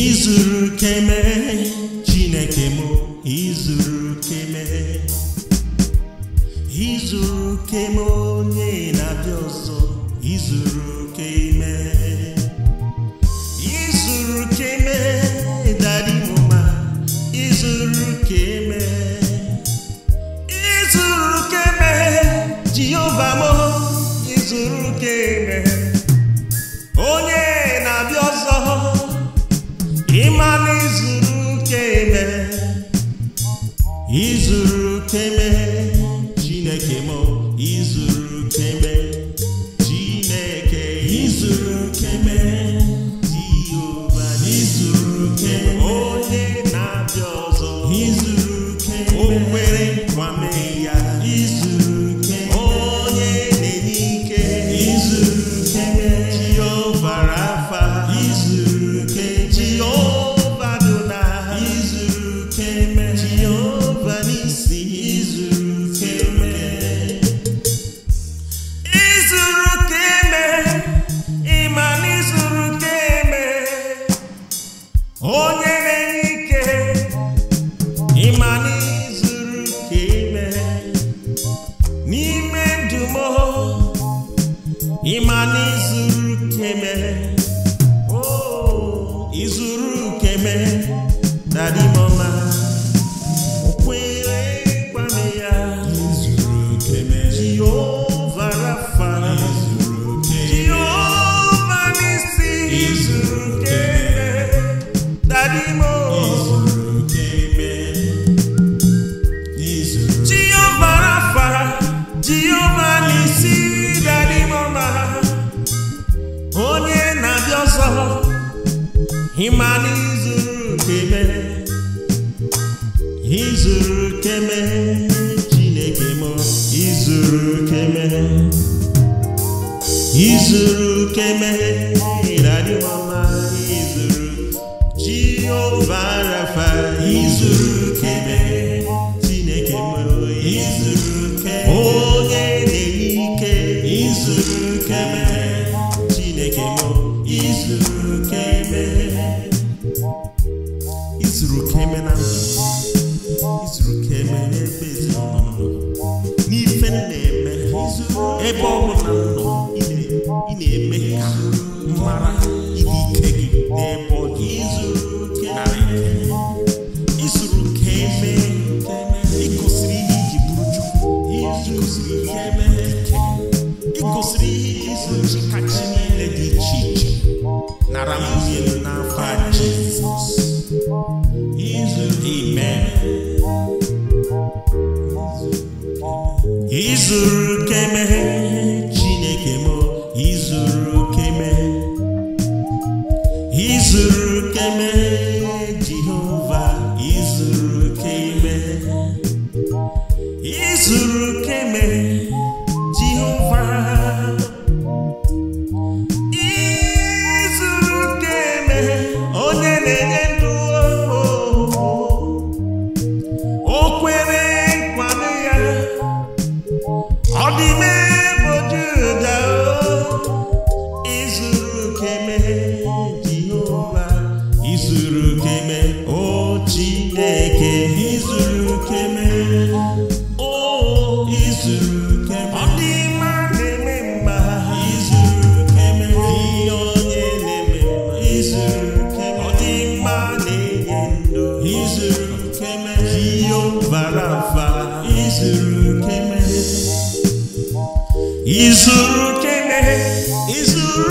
izuru keme chineke m izuru keme izuru keme onye na-abịa ọzọ izuru keme izuru keme dari ma, izuru keme izuru keme jehova m izuru keme ịma na izuru keme izuru keme izuru kene izuru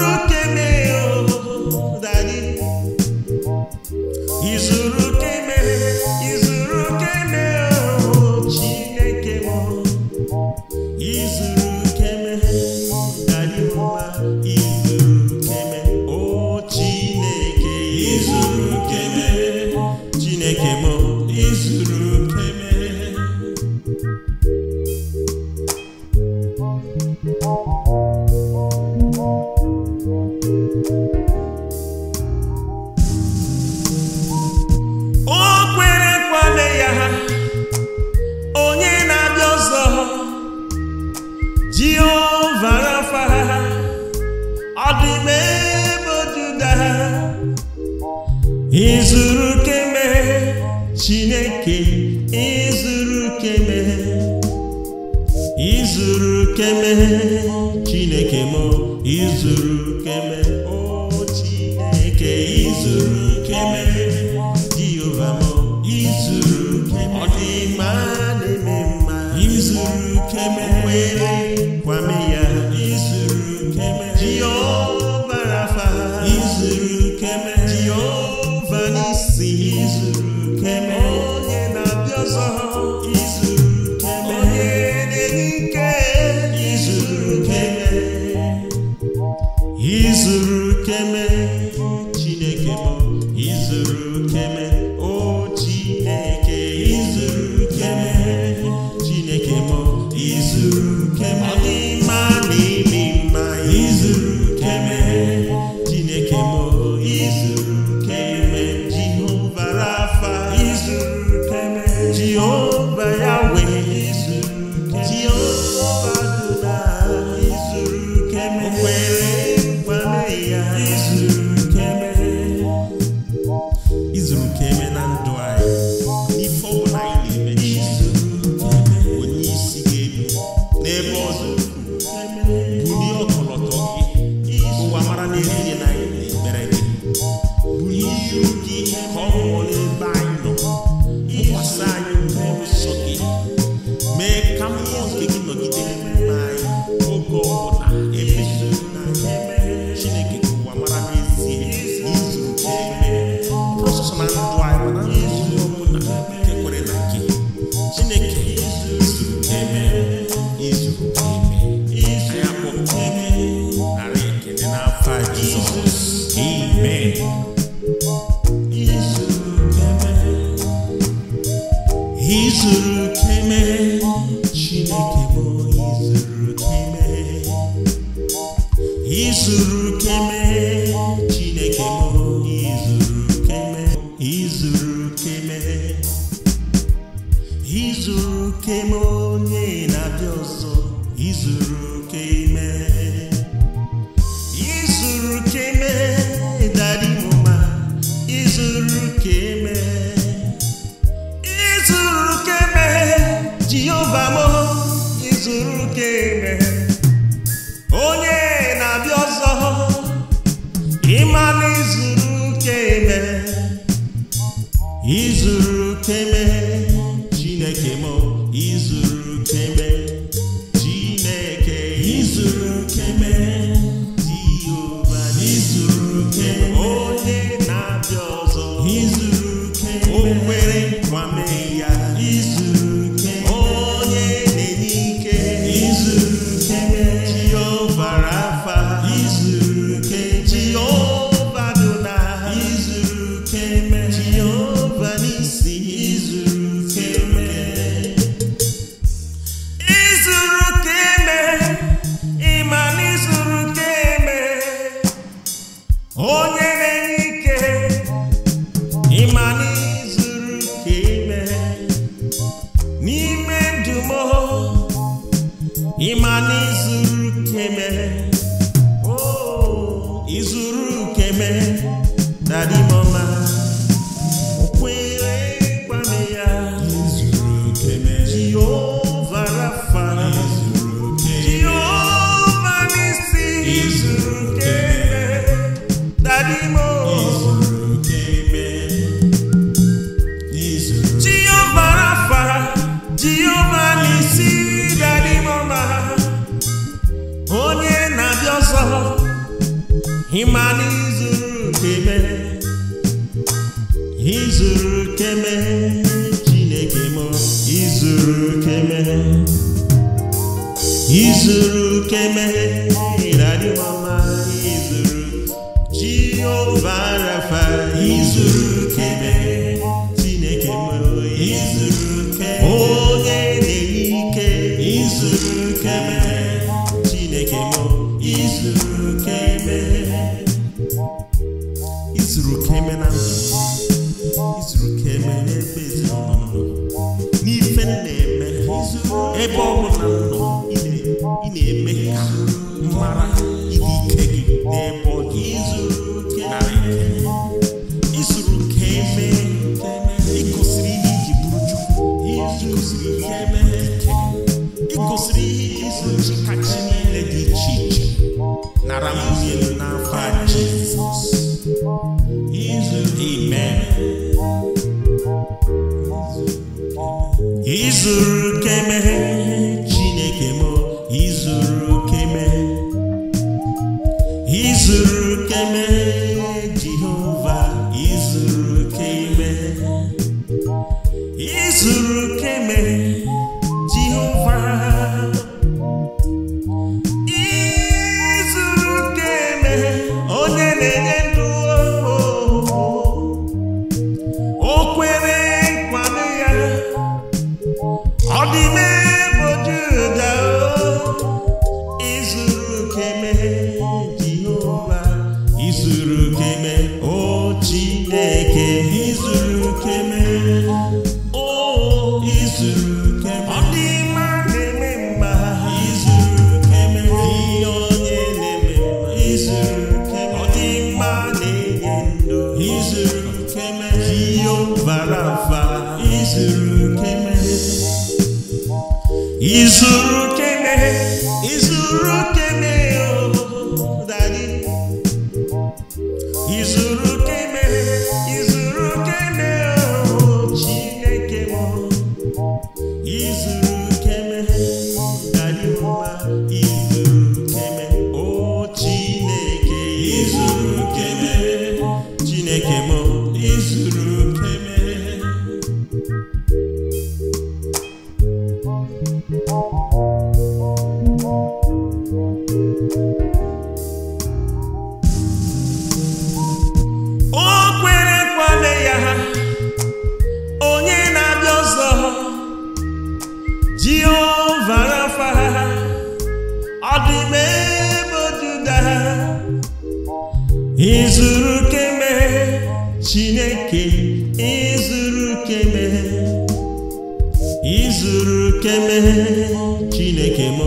chineke m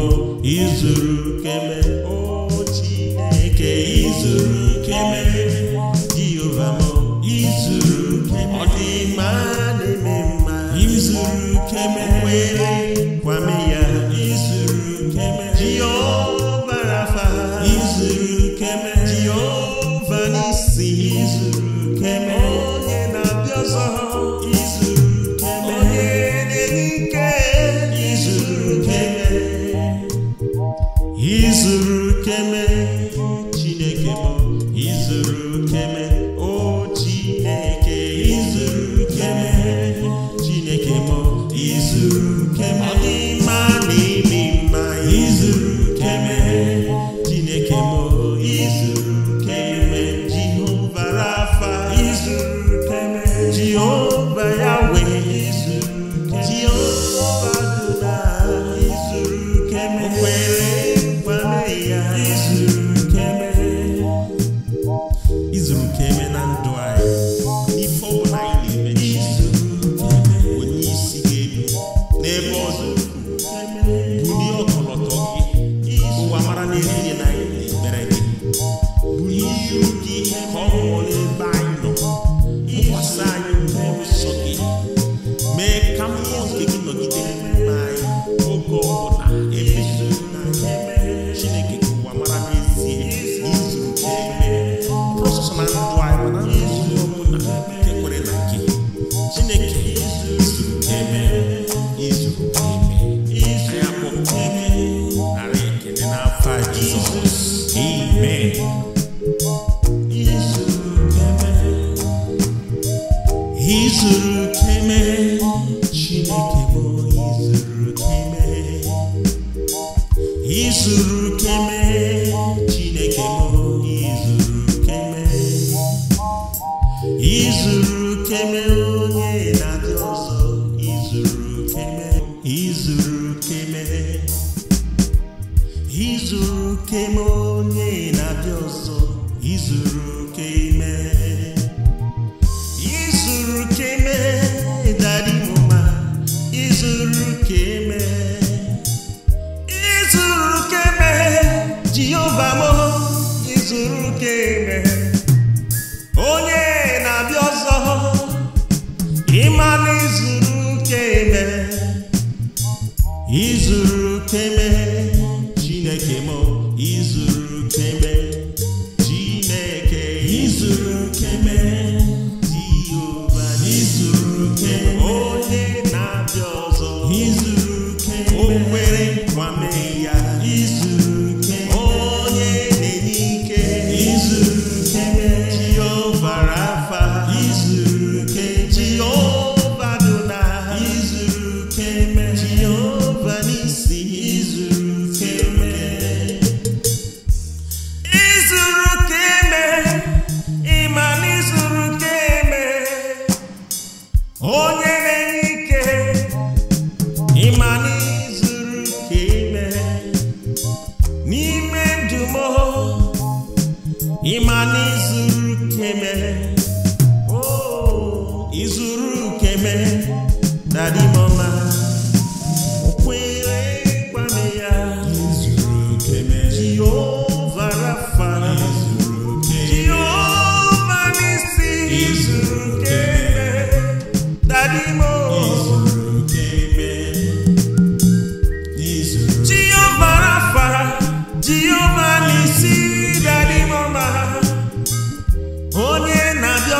izuru keme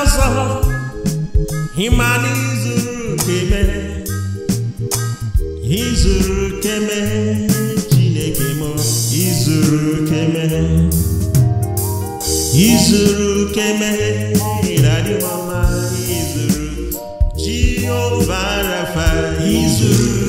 ọsọ himani zuru keme izuru keme chineke m izuru keme izuru keme izuru izuru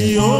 religion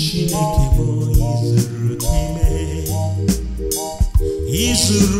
Chineke bụ izuru keme izuru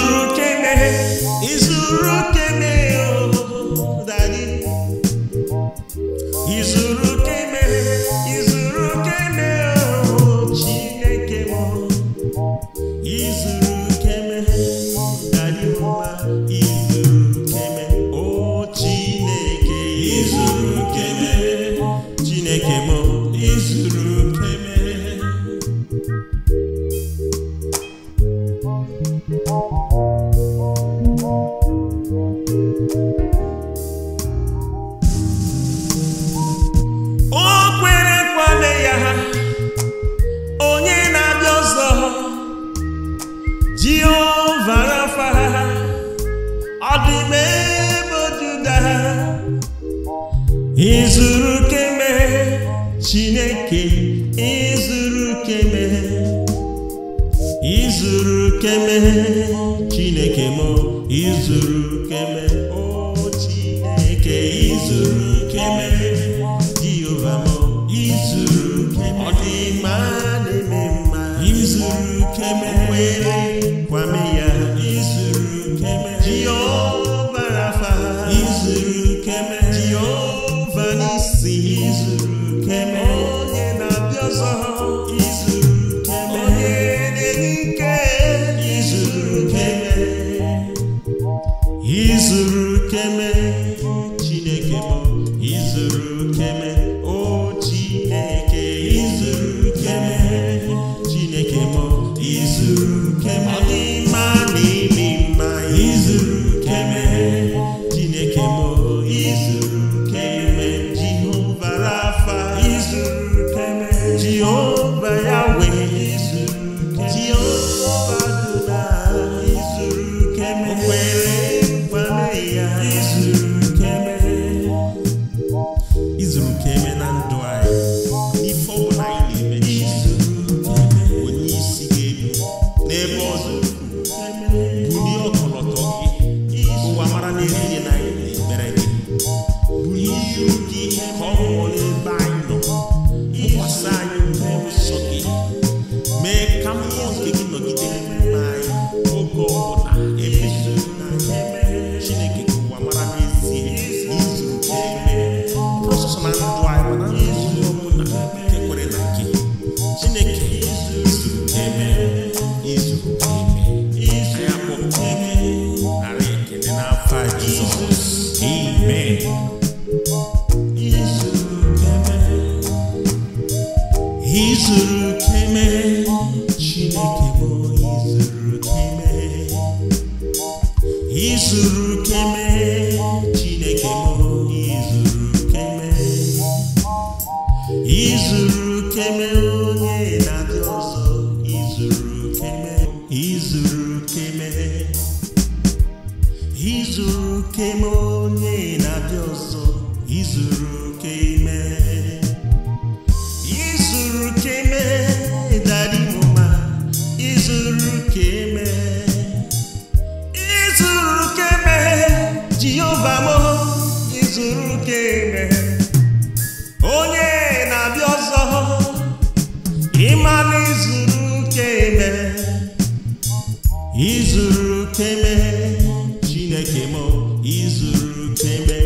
izuru keme chineke m izuru keme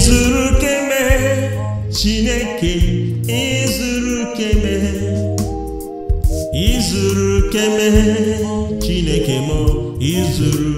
izuru keme chineke izuru keme izuru keme chineke m izuru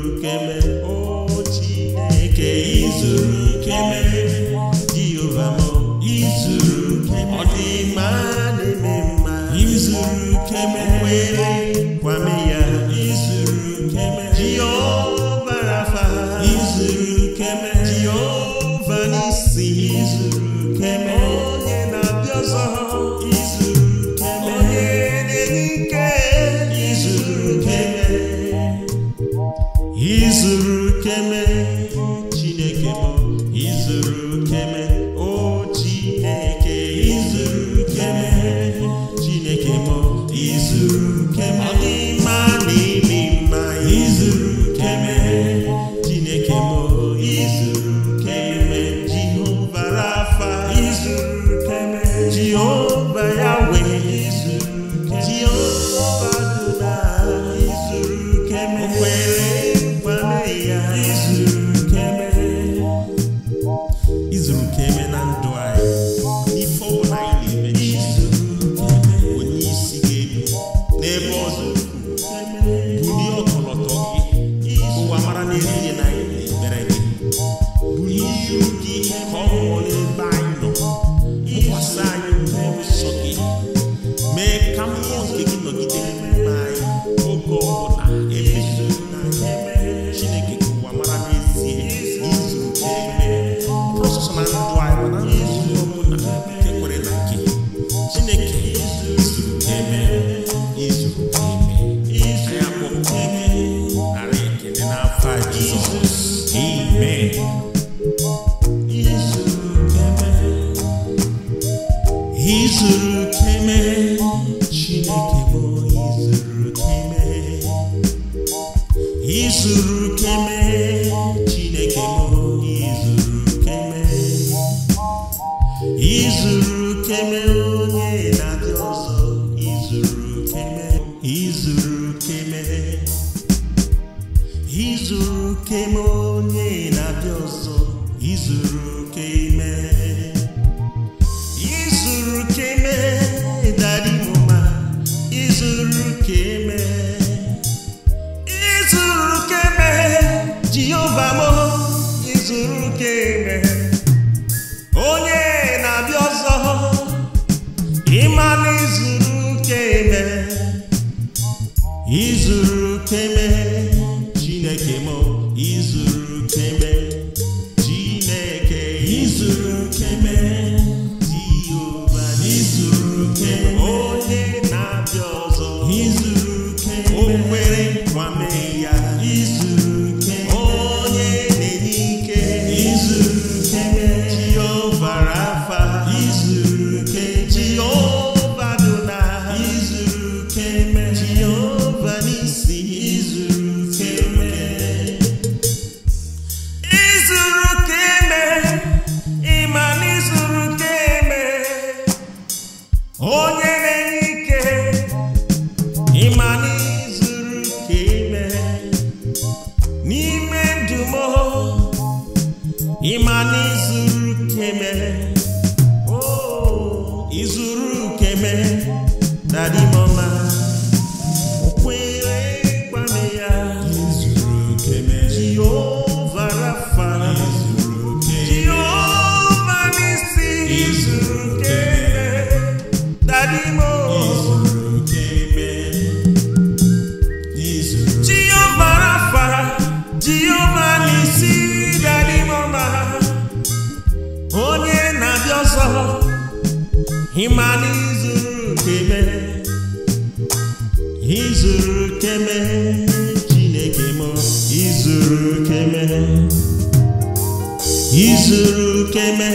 izuru ukeme na dimọma ịma na izuru keme izuru keme chineke m izuru keme izuru keme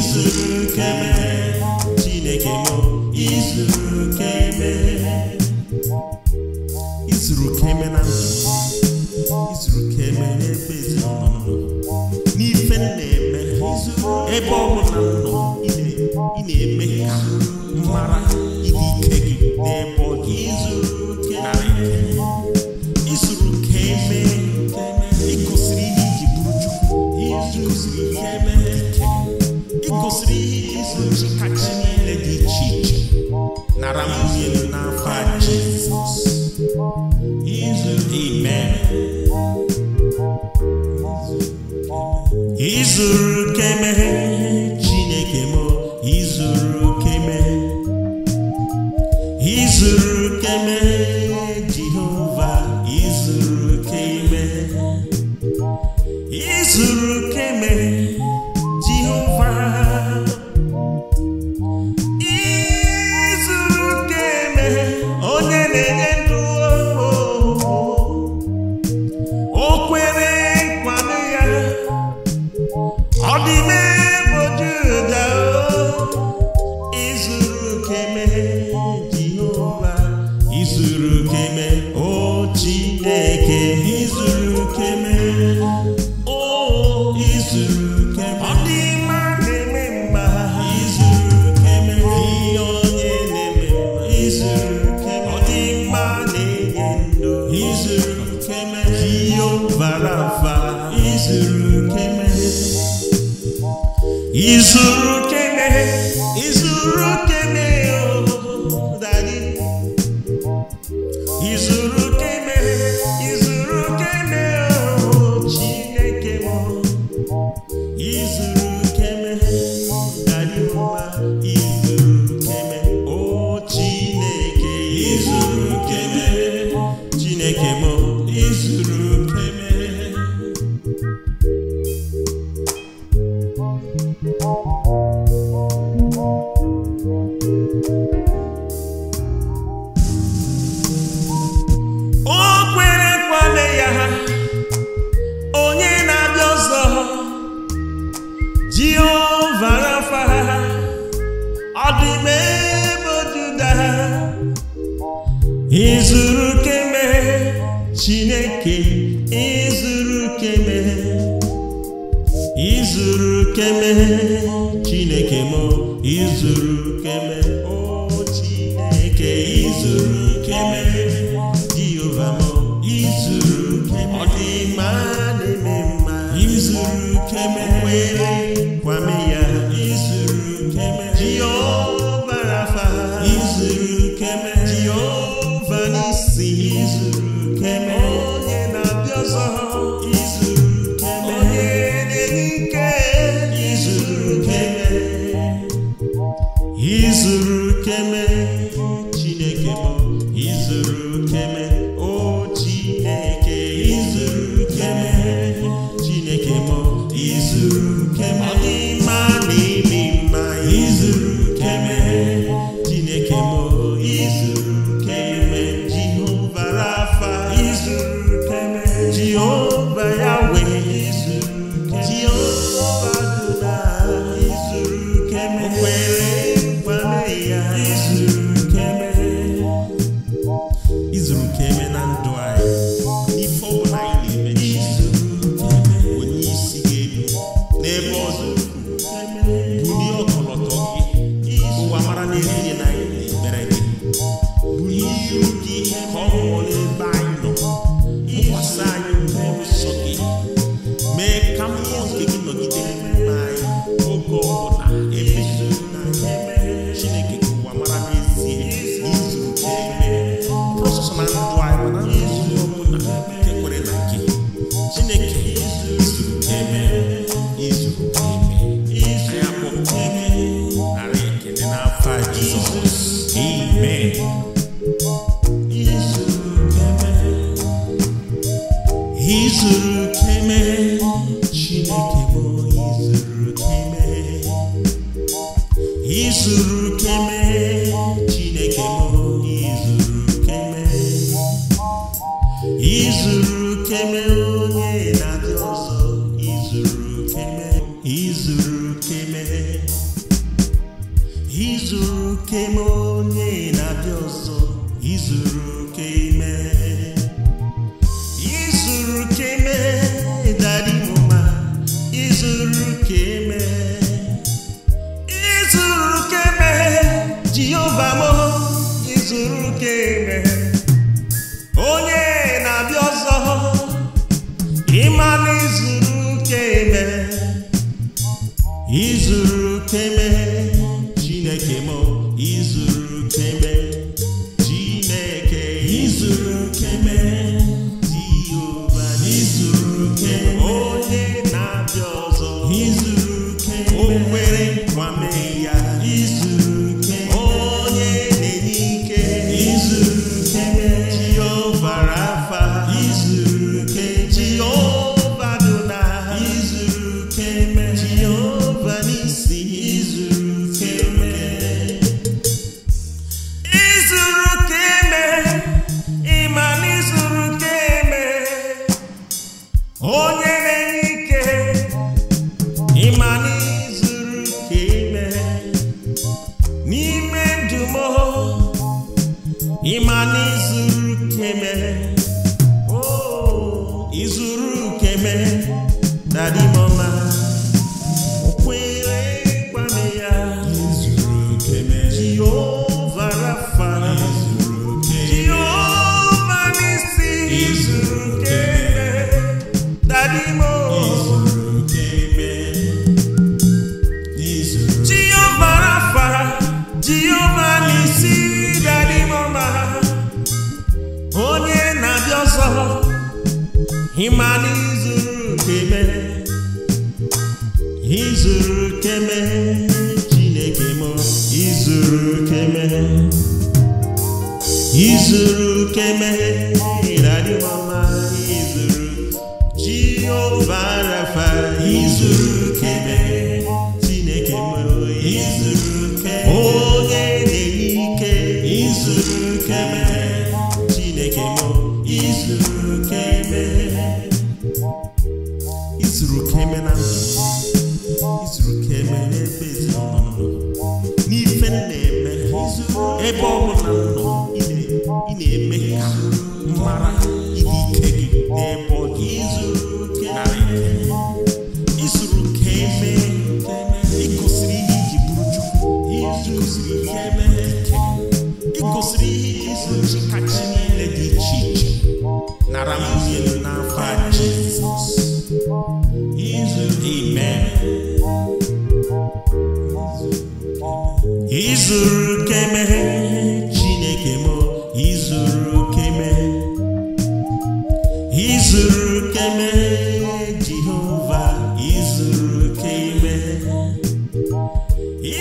Jésus qu'aimer.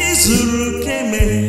izuru ka emere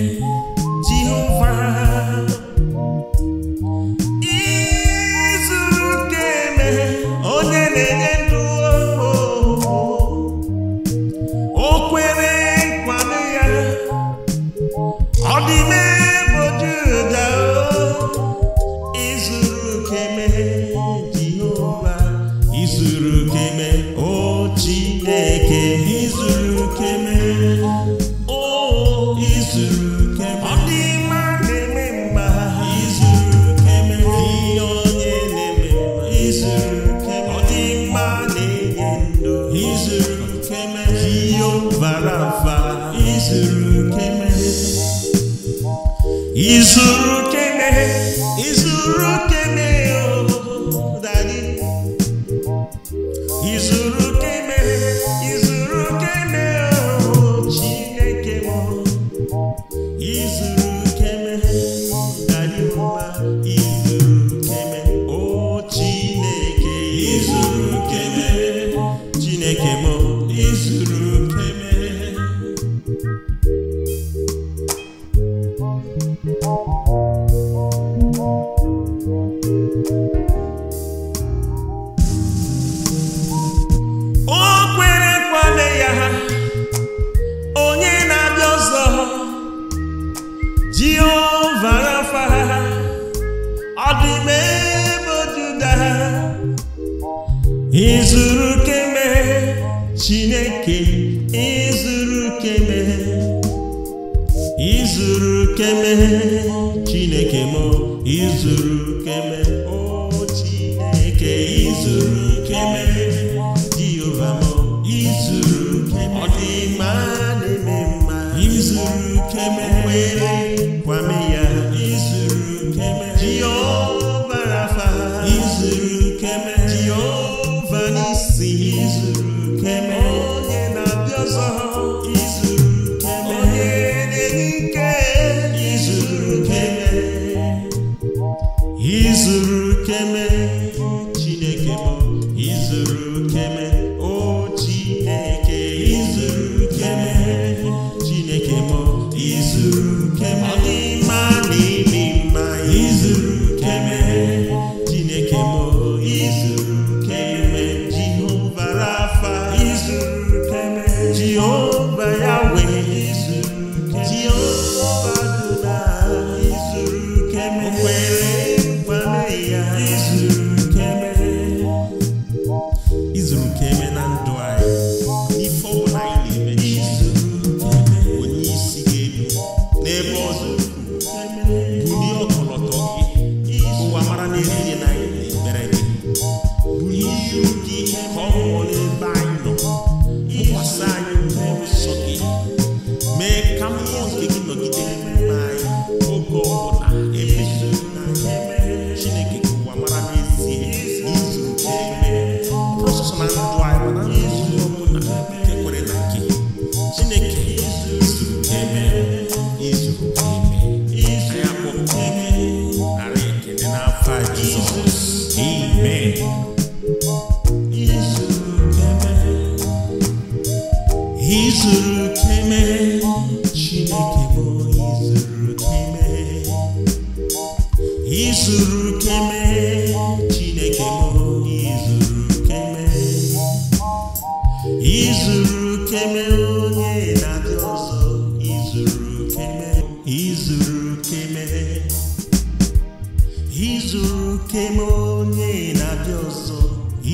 izuru oke ma onye na-abịa ọzọ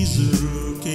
izuru oke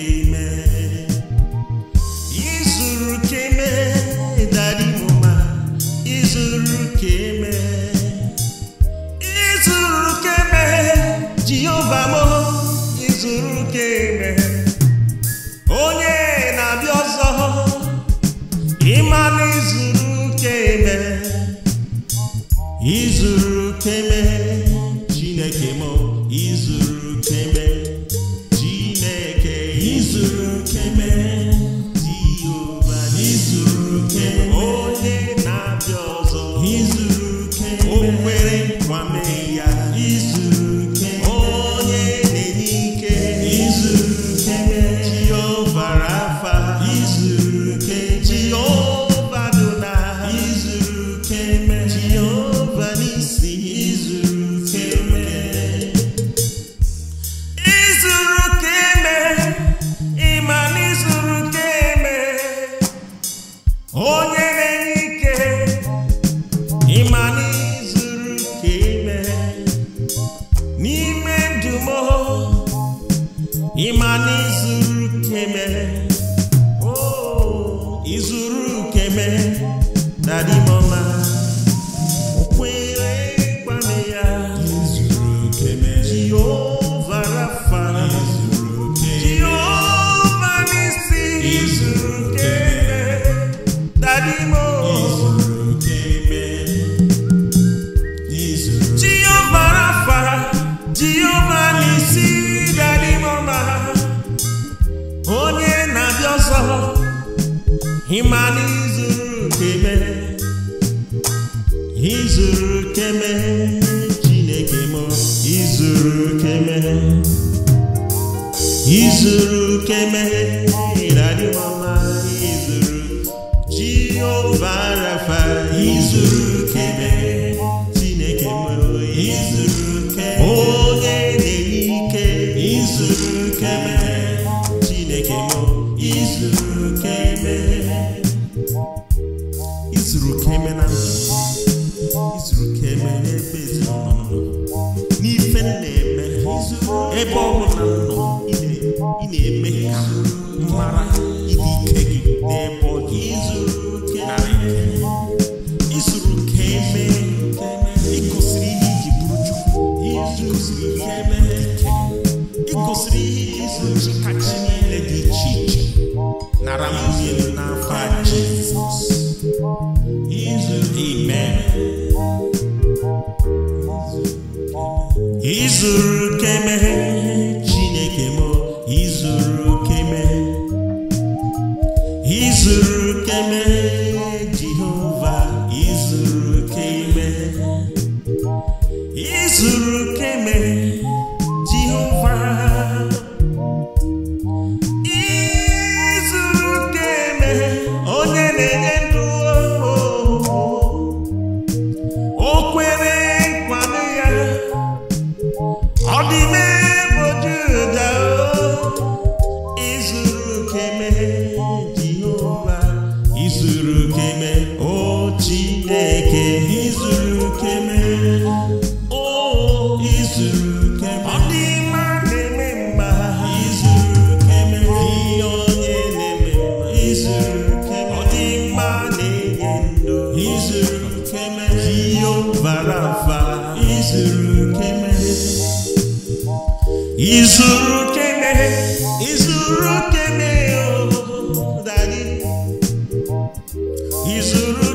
He's a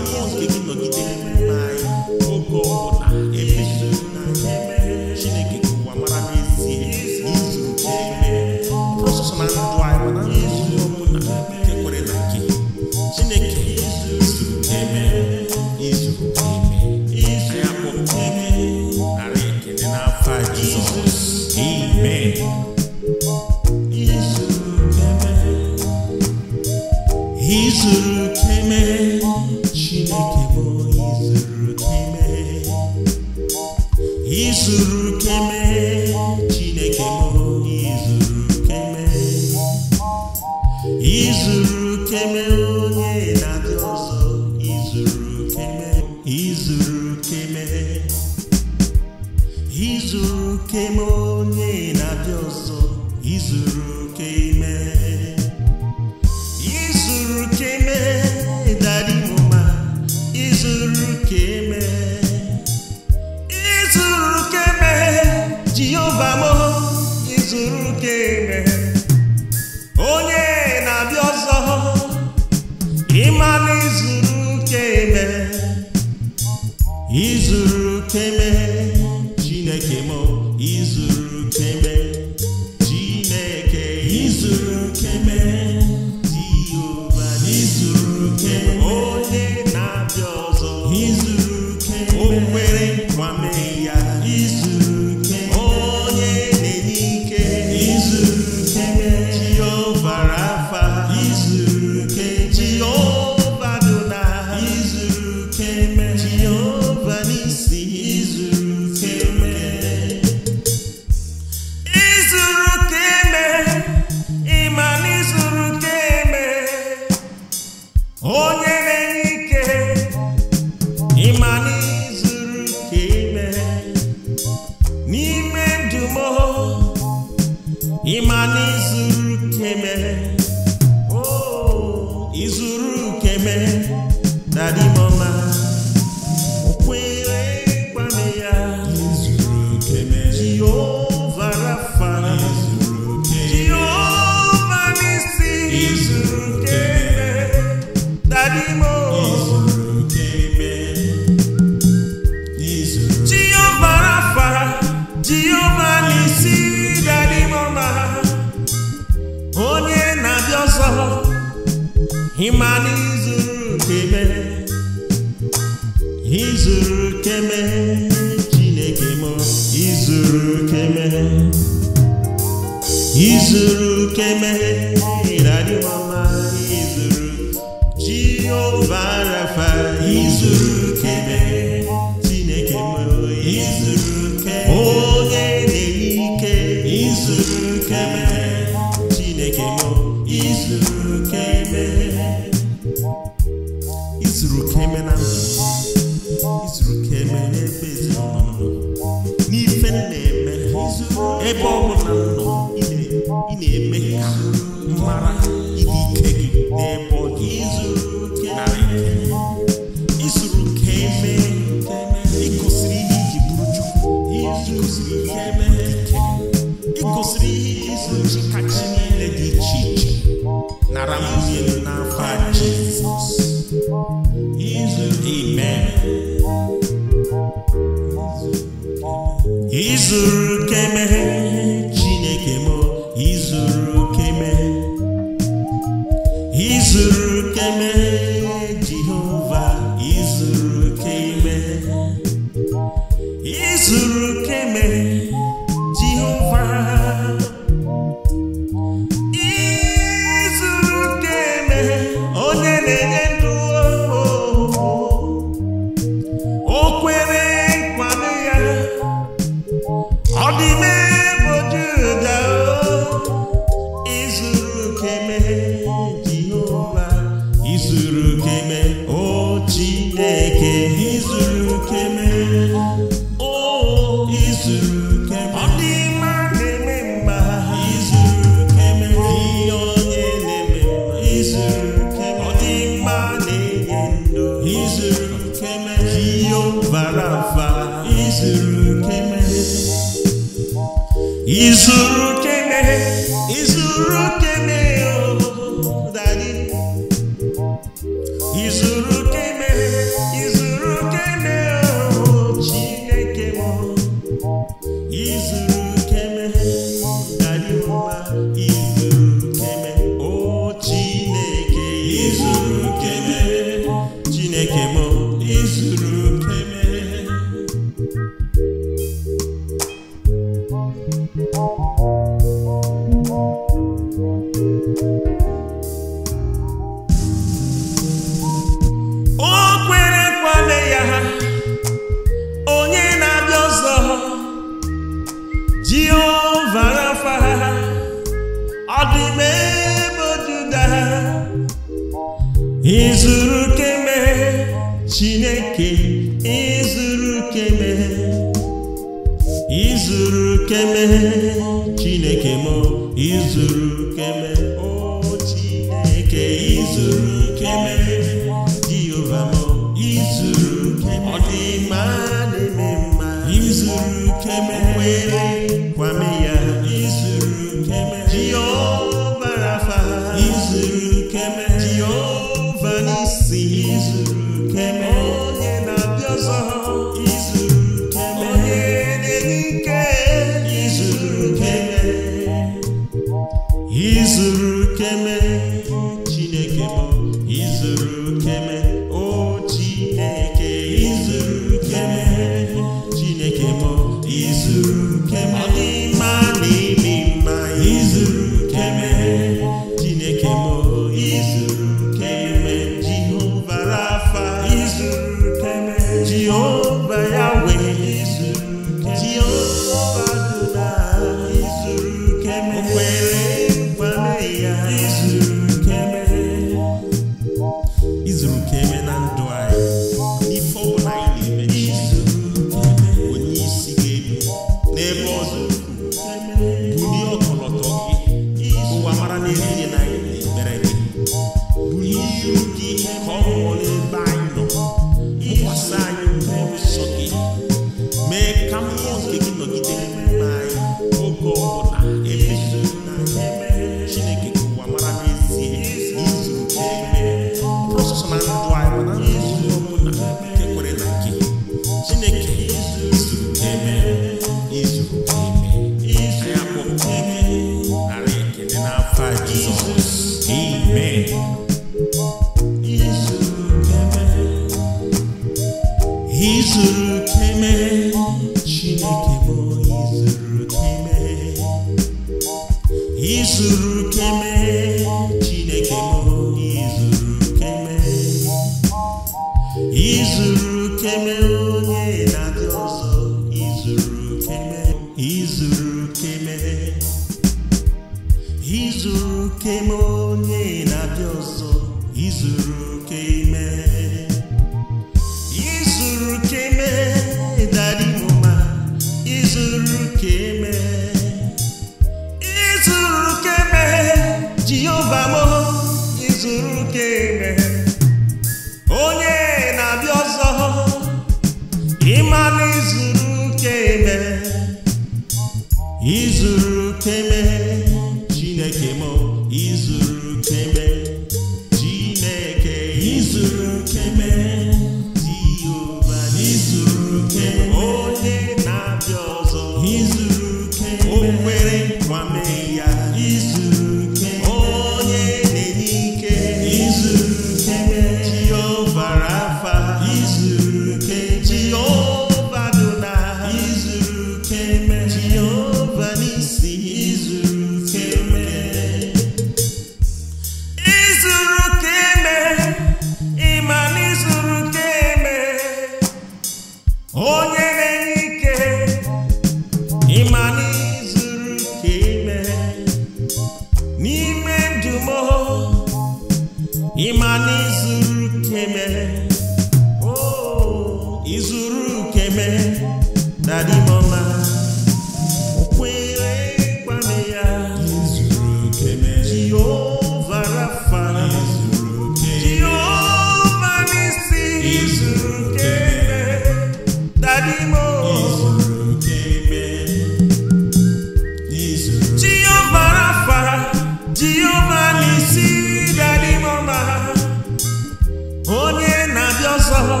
ọzọ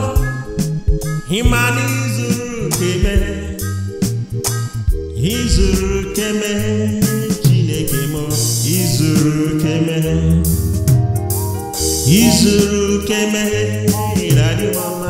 ịmana izuru dị izuru izuru izuru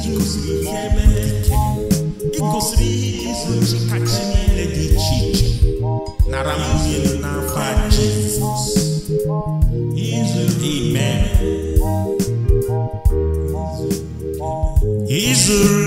ị gosiri ihe mgbochi kachi niile dị iche iche nara nwunye n'afa Jizọs Amen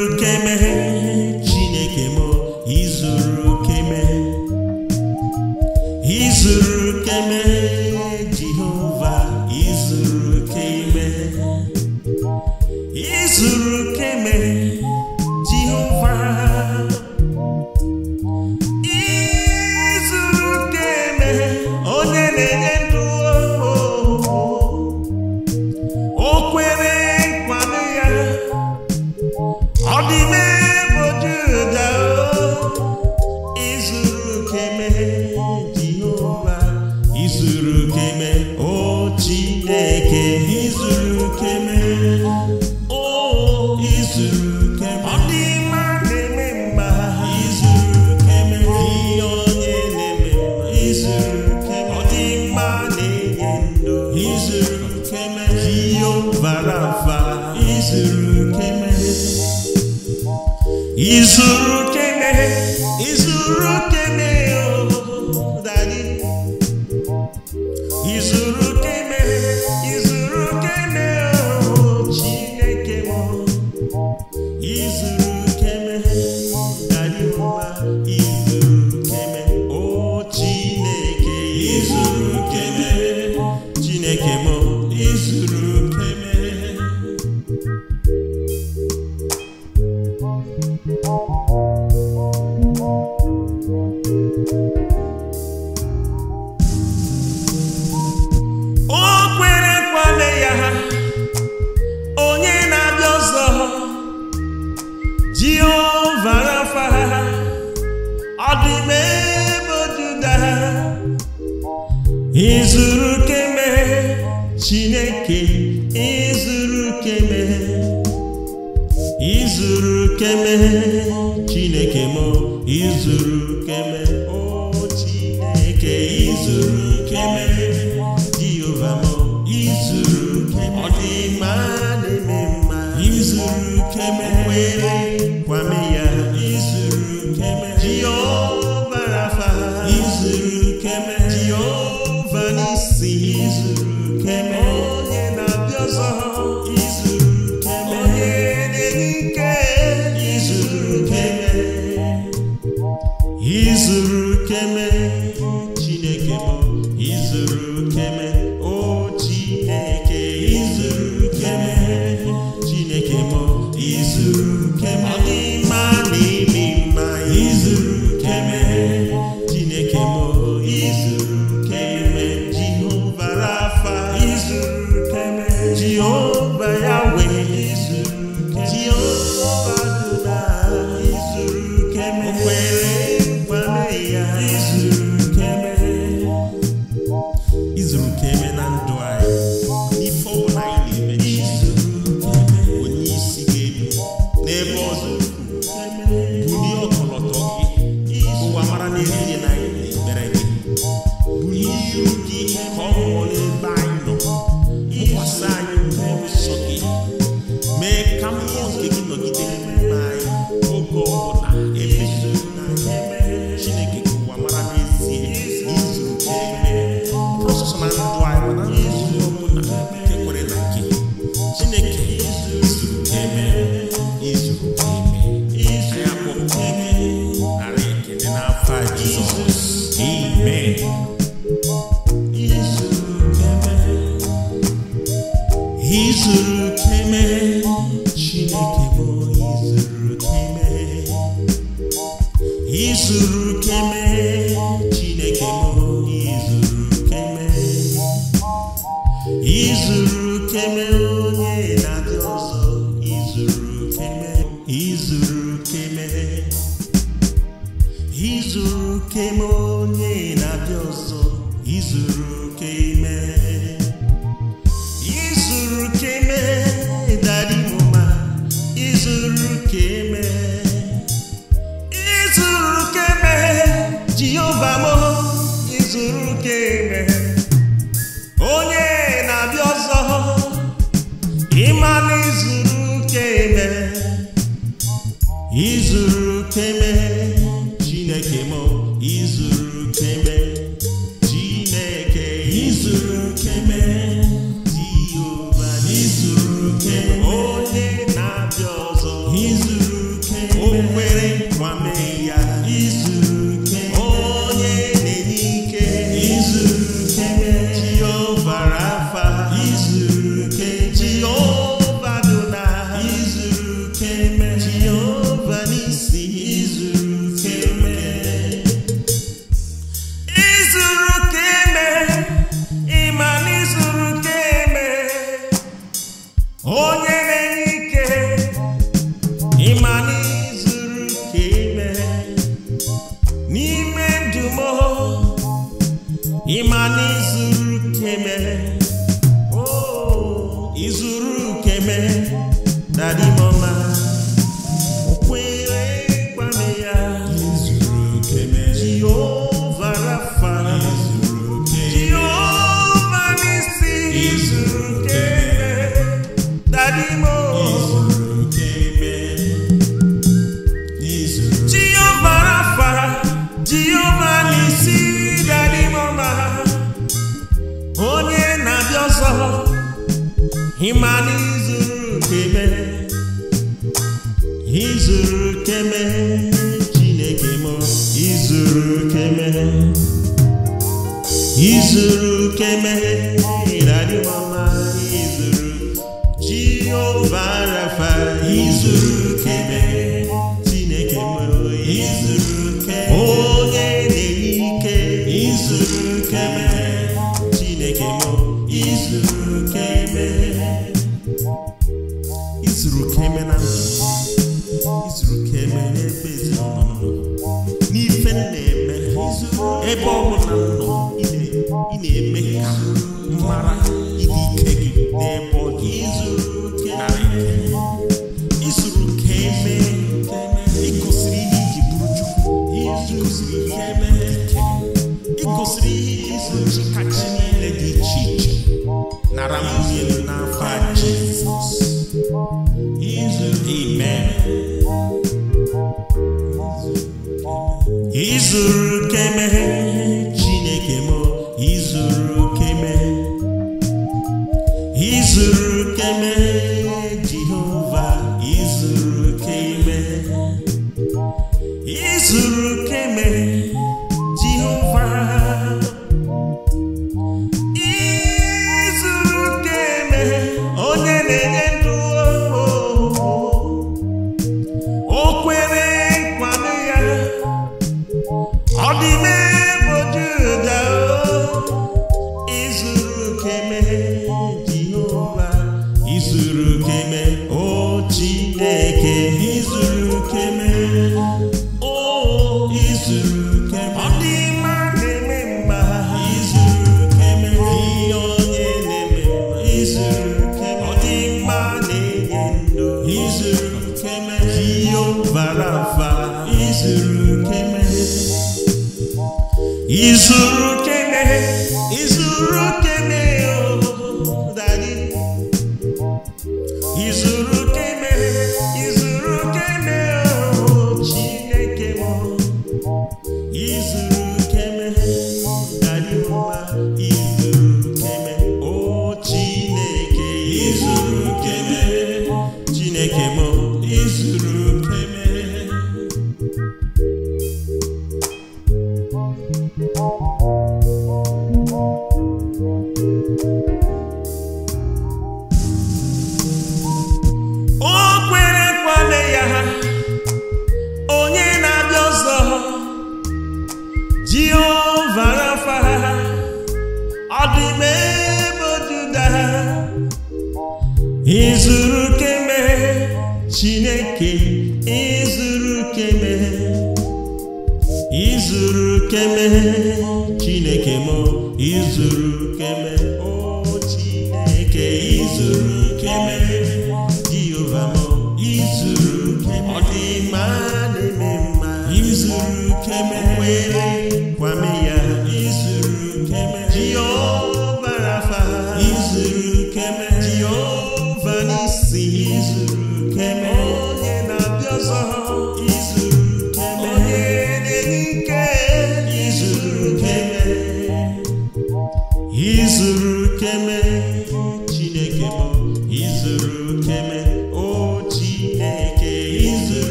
Jesus.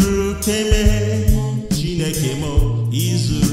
するけめ」「ちねけもいずれ」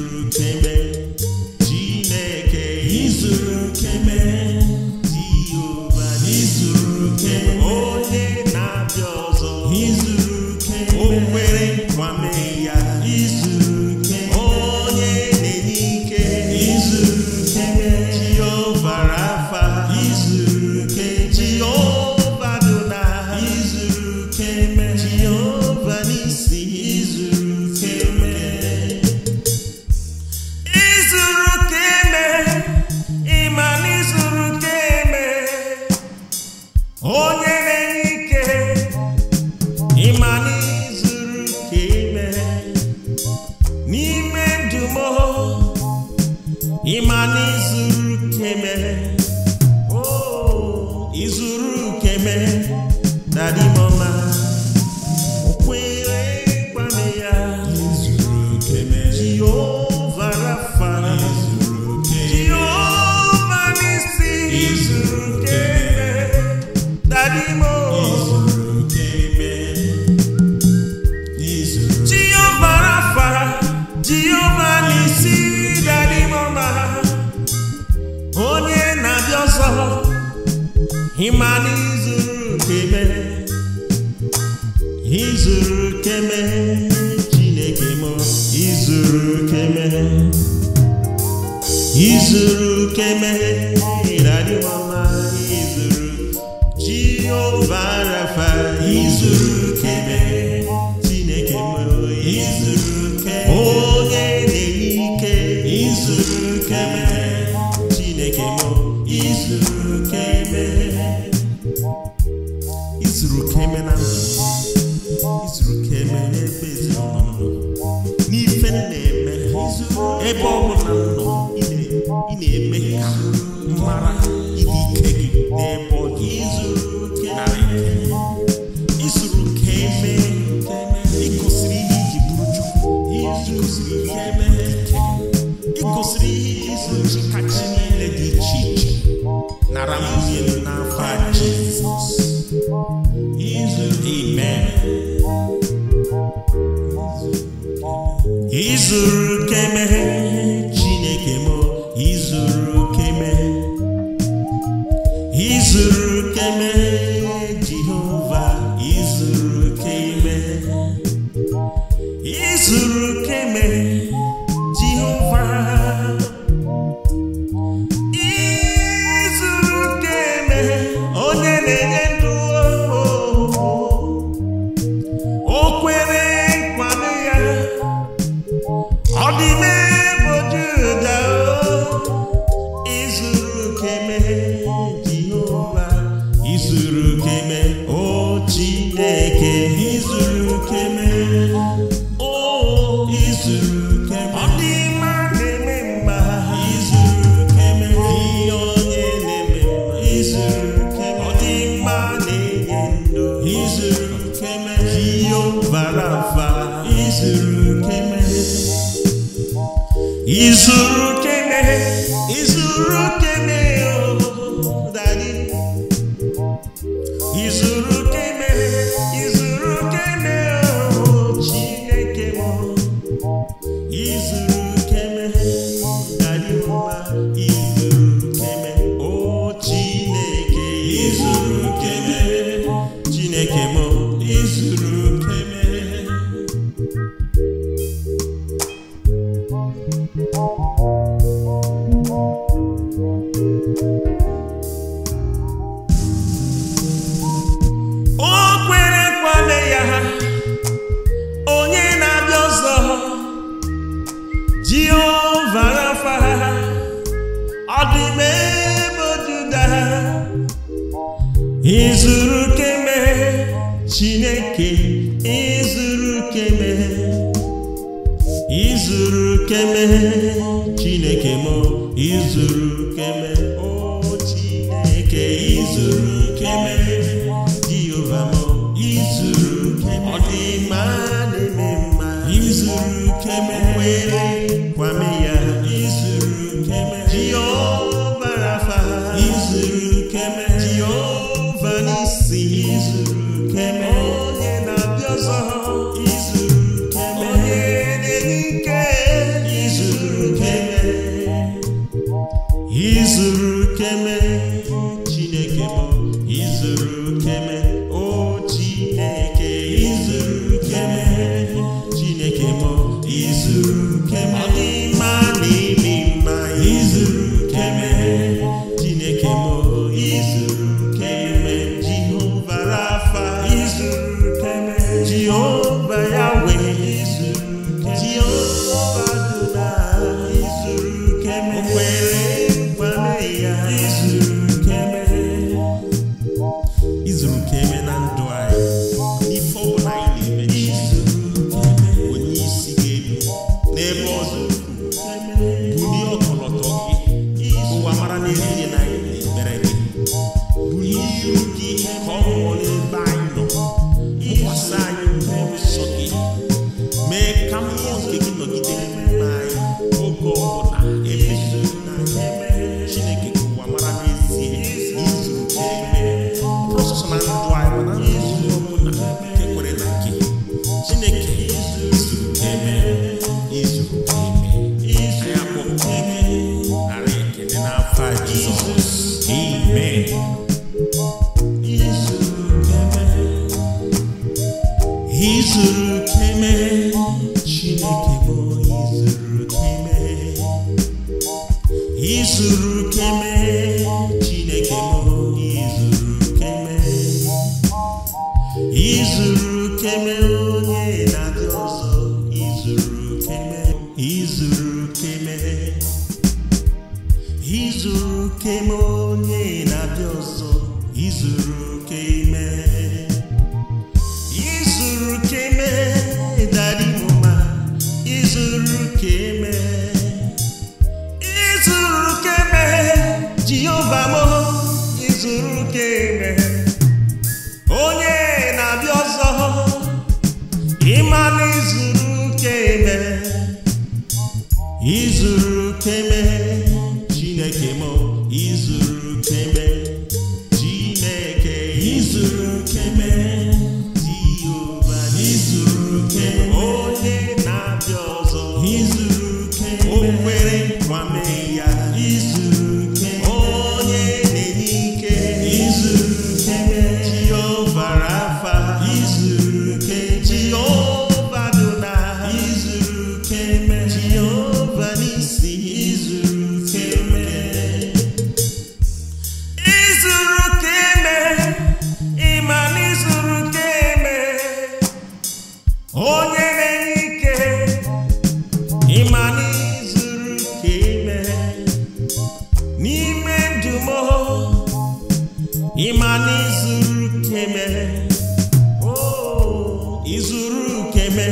izuru ukeme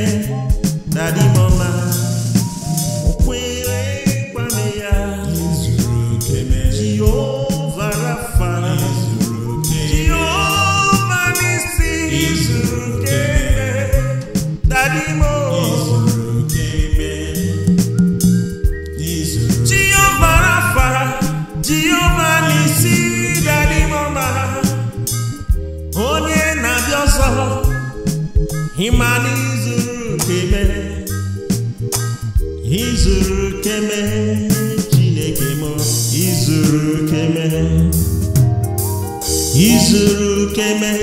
na dimọma keme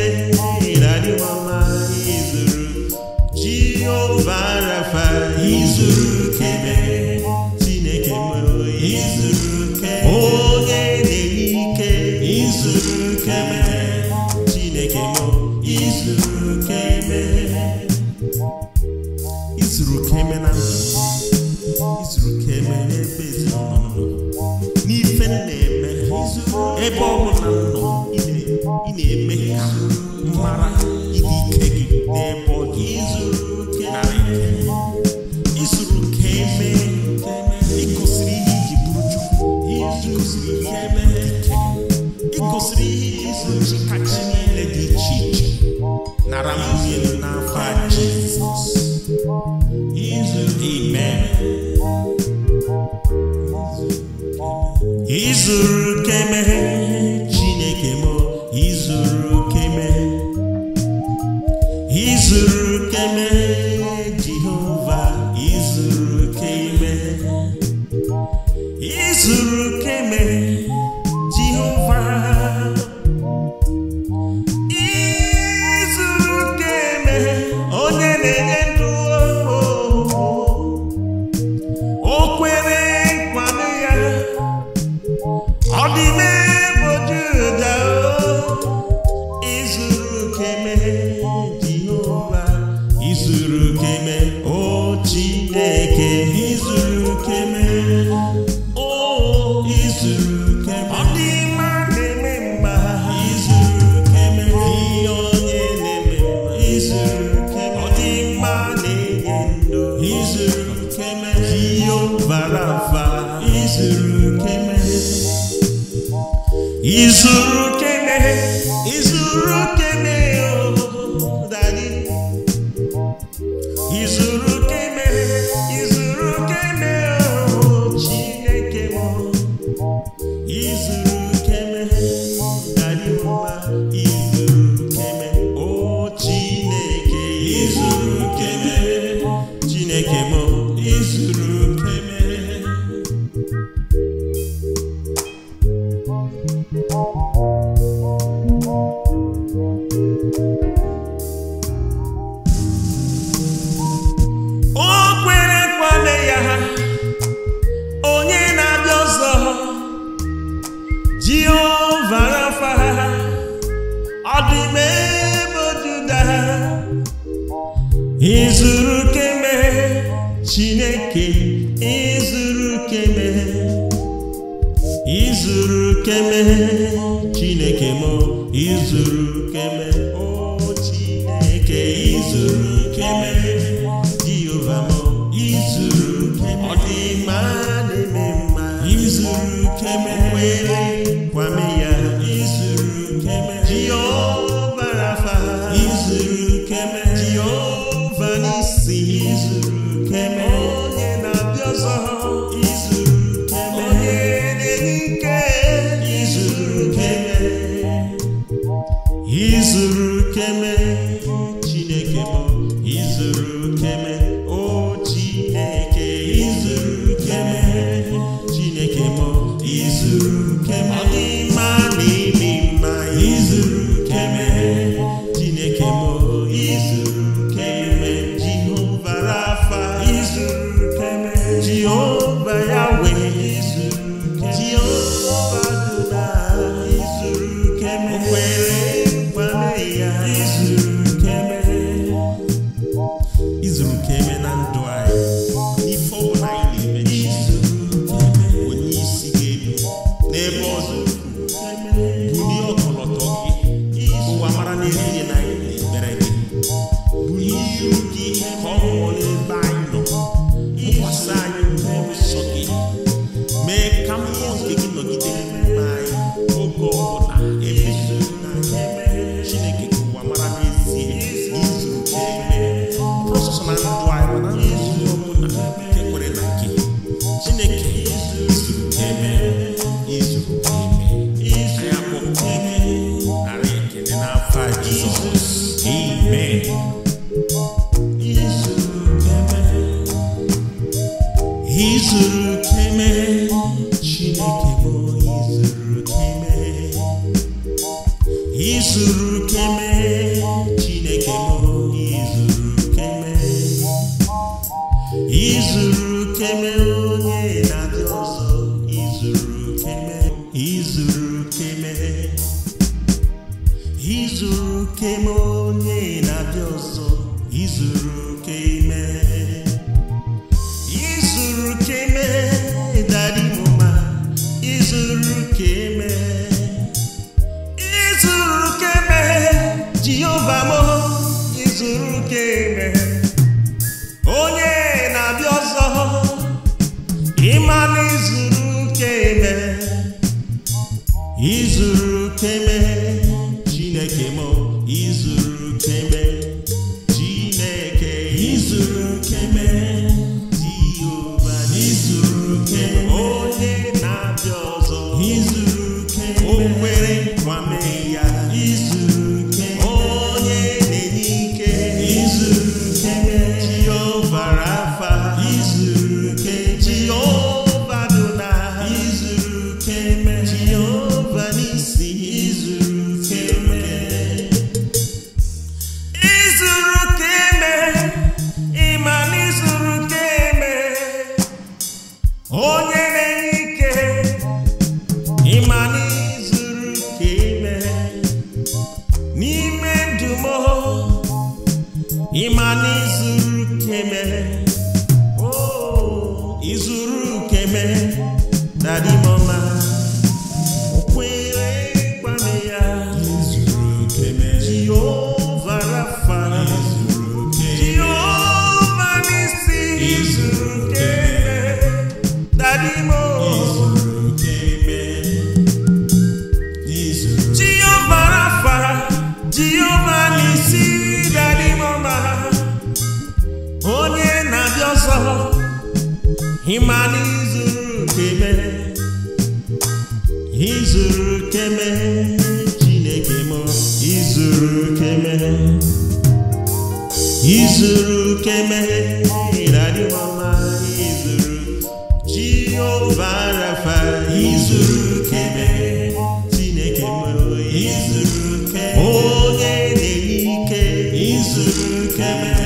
again.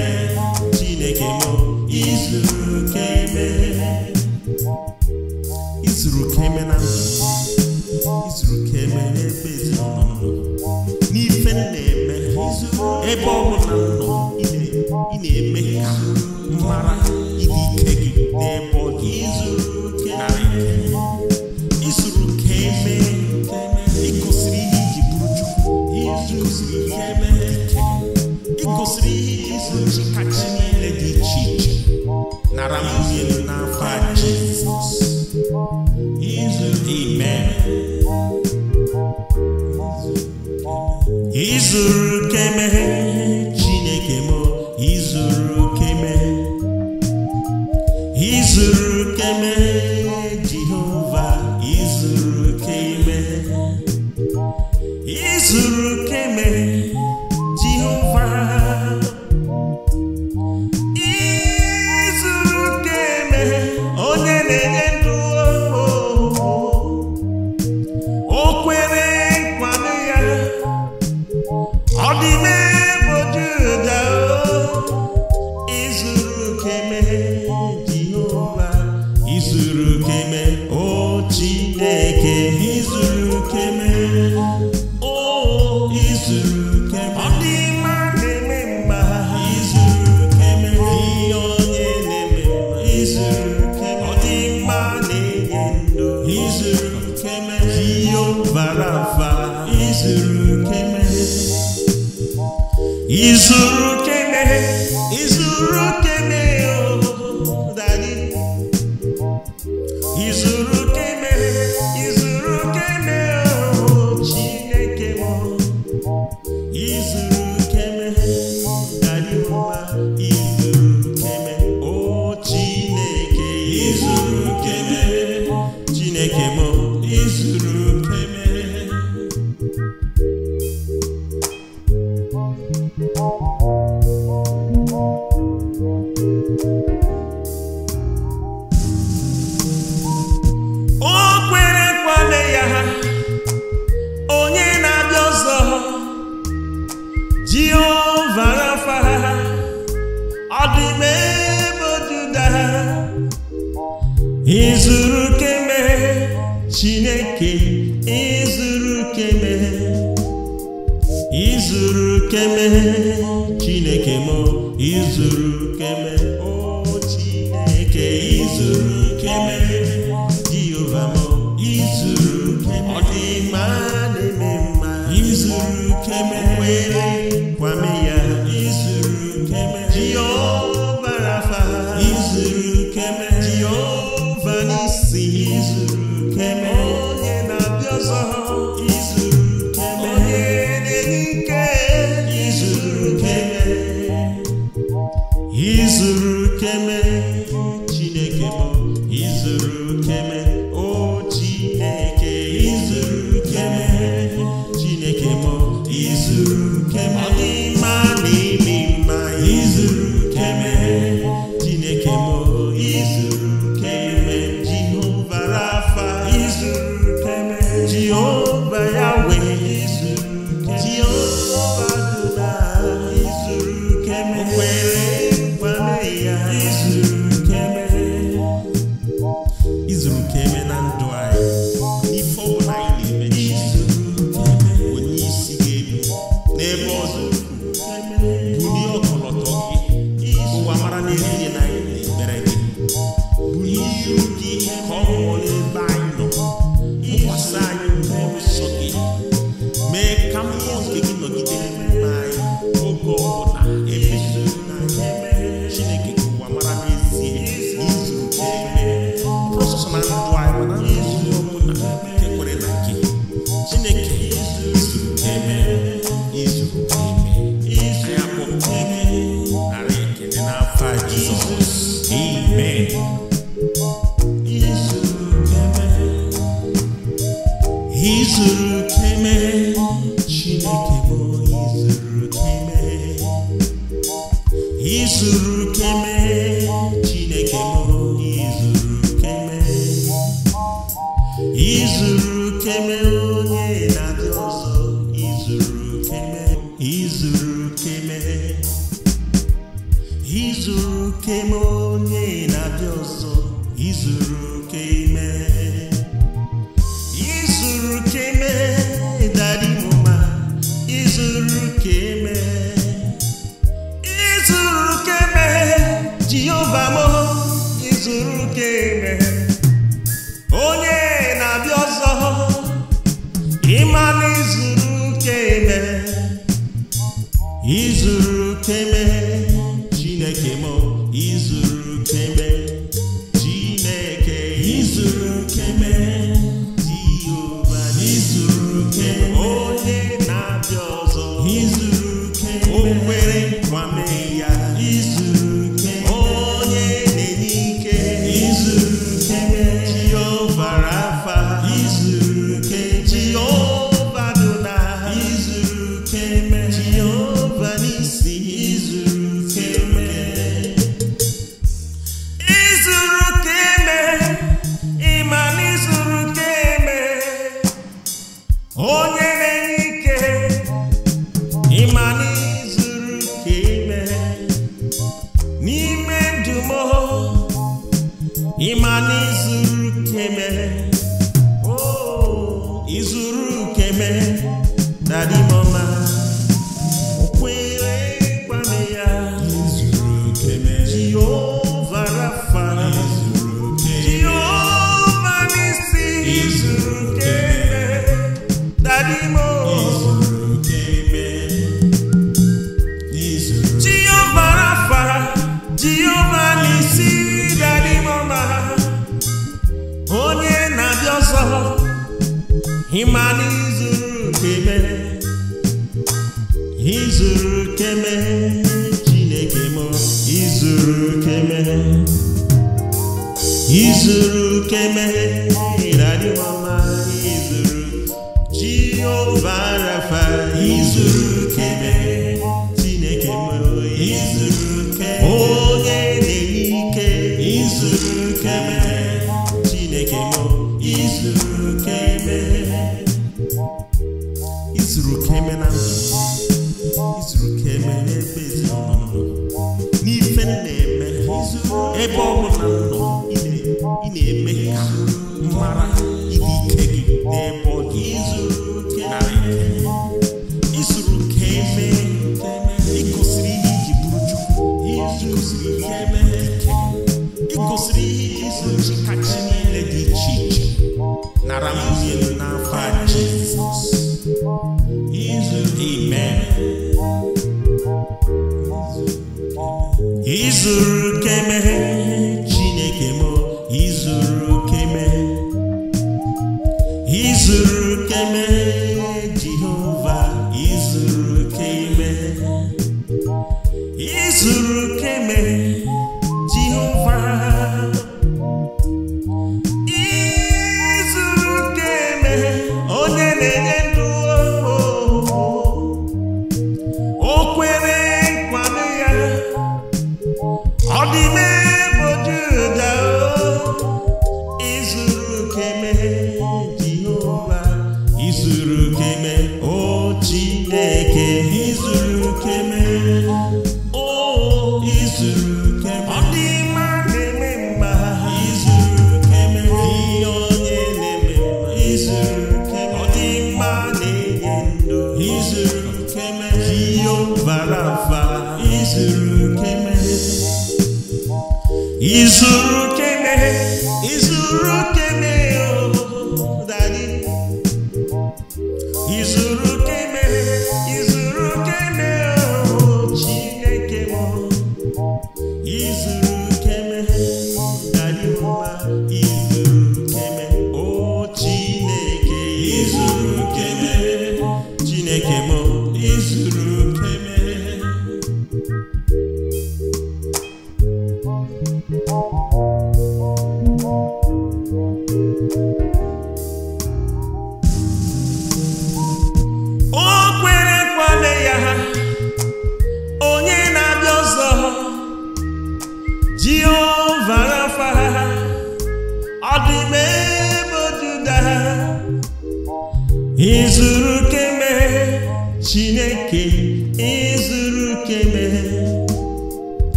izuru keme